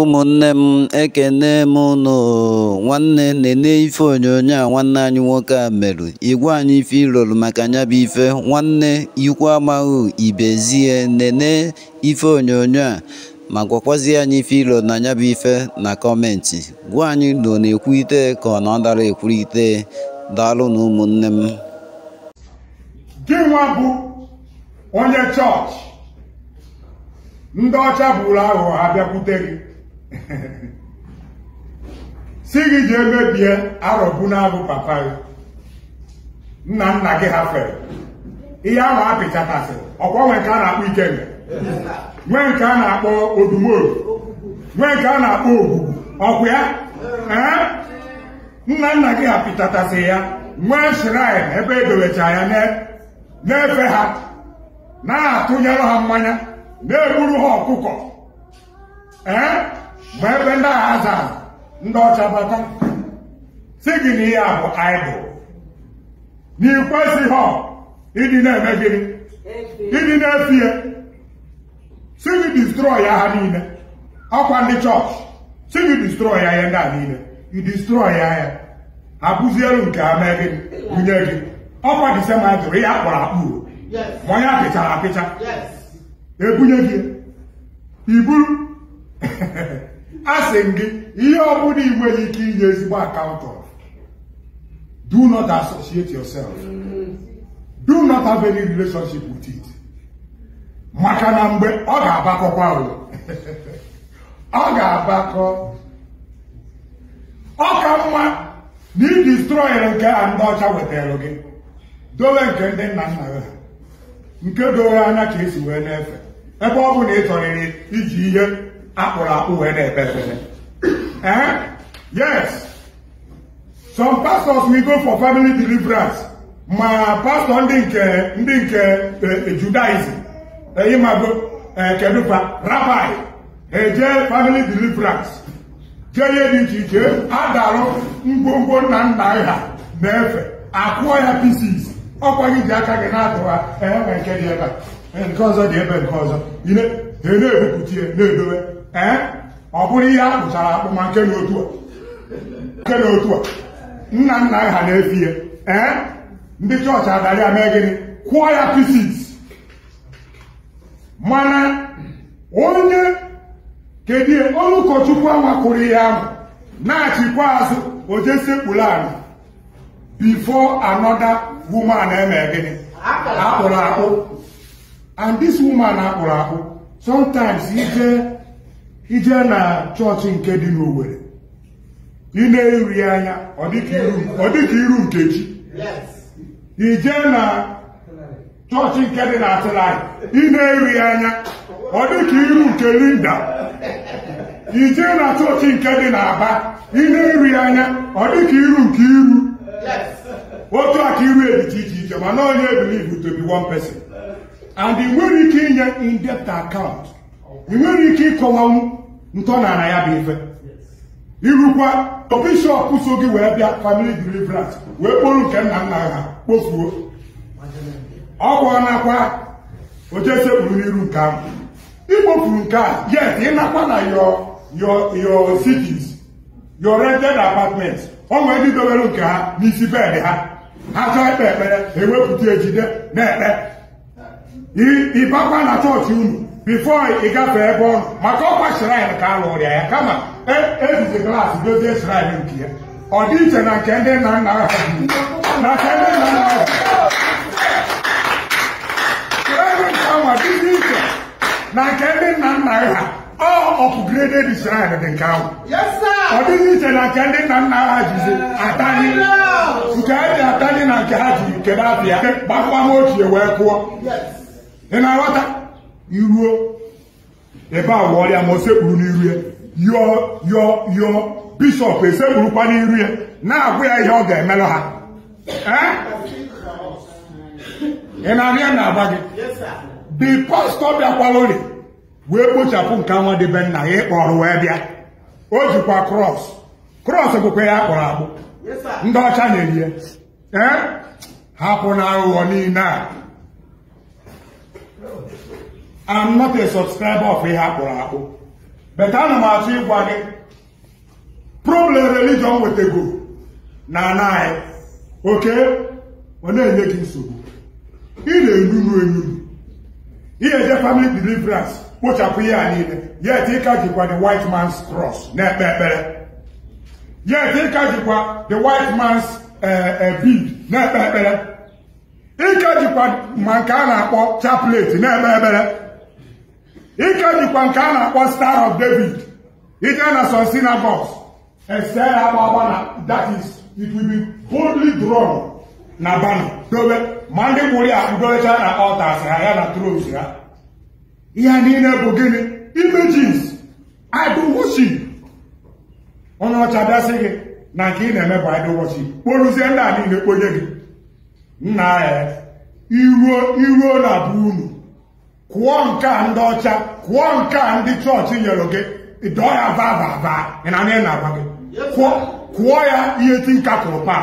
ụmụnne m ekene m nụ nwanne nene ife onyonyo a nwanne anyị nwoke a merụ igwe anyị ife maka nya bụ ife nwanne ikwu amaghị ibezie nene ife onyonyo a ma gwakwazi anyị ife ilo na nya bụ ife na kọmenti gwa anyị nọ na-ekwu ite ka ọ na ọ dara ite daalụ na ụmụnne m onye chọọchị ndị ọcha bụrụ aghụghọ ha bịakwute gị si gị ji ebe bie na-abụ papa gị nna nna gị ha fere ihe ahụ apịchatasịrị ọkwa nwee nke a na-akpọ ikenga nwee nke a na-akpọ odumoru nwee nke a na-akpọ ogbugbu ọkụ ya nna nna gị ha ya nwee shirain ebe edobecha ya na-efe ha na-atụnyere ha mmanya na-egburu ha ọkụkọ mgbe ebe ndị agha azara ndị ọcha bata si gị na ihe a bụ idol na ikwesịghị ịdị na-eme gịnị ịdị na-efi ya si gị distrọy ya ha niile ọkwa ndị chọọchị si gị distrọy ya ihe ndị a niile i ya ya abụzielu nke ha mee gị bunye gị ọkwa disemba jụrụ ihe akpọrọ akpụ ma onye apịchara apịcha ebunye e gị iburu asị m gị ihe ọ bụla ị nwere ike inye ezigbo akaụntụ do not associate yourself do not have any relationship with it maka na mgbe ọ ga-abakọkwa ọ ga-abakọ ọ ka mma na ị distrọyere nke a ndị ọcha wetara gị dowe nke ndị nna nna gị nke dowe anya ka esi wee na-efe ebe ọ bụ na ị chọrịrị iji ihe akpụrụ akpụ wee na-ekpe ekpere eh yes some pastors will go for family deliverance ma pastọ ndị nke ndị nke eh, judaism ịmago eh, kedupa rabai eje family deliverance jee ihe dị iche iche adarụ ngwongwo nna nna ha na-efe akụọ ya pieces ọkwa gị ji aka gị na-atụwa eh, enwe nke dị ebe nke ọzọ dị ebe nke ọzọ ị na-ebupụta ya na-edowe ọ bụrụ ihe a kpụchara akpụ ma nke na otu a nna nna ha na-efi ya ee ndị chọọchị adara ya mee gịnị kwụọ ya pisis mana onye kedu onye ụkọchukwu anwakụrụ ihe ahụ na-achịkwa azụ o jesekpuru ala before another woman eme gịnị akpụrụ akpụ and this woman akpụrụ akpụ sometimes ije ije na chọọchị nke dị n'owere ị na-eri anya ọ dịka iru chi ije na chọọchị nke dị na Atịlaị ị na-eri anya ọ dịka iru nke Linda ije na chọọchị nke dị na aba ị na-eri anya ọ dịka iru nke iru otu aka iru ebiche iche iche mana onye believe one person and ị nwere ike inye in akaụntụ. ị nwere ike ịkọwanwu ntọnala ya bụ ife irukwa bishọp so gị wee bịa family deliverance wee kpọrọ nke nna nna ha kpofuo ọ kwụọnakwa ojesekpuru n'iru nke ahụ ikpofuru nke a yes ịnakwa na your cities your rented apartment ọ ndị dobere nke ha n'isi bed ha ha chọọ ekpe ekpere ewepụta ejide na-ekpe ịbakwa na chọọchị unu bifo ị gafe ebe ọ nọ maka ọkwa shrine ka a lụrụ ya ya kama ejizi glaasị dozie shrine nke ya ọ dị iche na nke ndị nna nna ha na nke ndị nna nna ha shrine nke ahụ adịghị iche na nke ndị nna nna ha ọ ọpụgreded shrine dị nke ahụ ọ dị iche na nke ndị nna nna ha jizi atani nke ha ji atani na nke ha ji kedu abịa gbakwa ha ochie wee pụọ ị na-aghọta iruo ebe a ọrịa ma o sekpuru n'iru ya yọọ yọọ yọọ bishọp esekpurukwa n'iru ya na-agwa ya ihe ọ ga-emelụ ha ị na-arịa na-agba gị dị pastọ bịakwalụri wee kpochapụ nke anwa debe nna ya ịkpọrọ wee bịa o jikwa krọs krọs bụkwa ya kpọrọ akpụ ndị ọcha na-eyi ya Ha hapụ na aghụghọ niile a i I'm not a subscriber of ihe akpụrụ akpụ but ana m achọ ịgwa gị problem religion wetego na ana anyị oke ọ na-enye gị nsogbu ị na-enunu enunu ihe eje family deliverance kpochapụ ihe a niile yet ịka jikwa the white man's cross na-ekpe ekpere yet ịka jikwa the white man's eh, eh, bead na-ekpe ekpere ịka jikwa ma nke a na-akpọ chaplet na-ekpe ekpere ike dịkwa nke a na-akpọ star of david ije na some synagogues ese ya agba na that is it will na bana dobe ma ndị gburu ya akpụdorecha na altars ha ya na tros ya ihe niile bụ gịnị imejis idol onye ọcha bịasị gị na nke ị na-eme bụ idol worship ndị a niile kponye gị nna ya iruo na bụ unu kụọ nke a ndị ọcha kụọ nke a ndị chọọchị nyere gị ịdọọ ya vaa vaa vaa ị na-agwa gị kụọ ya ihe ti nka kụrụ paa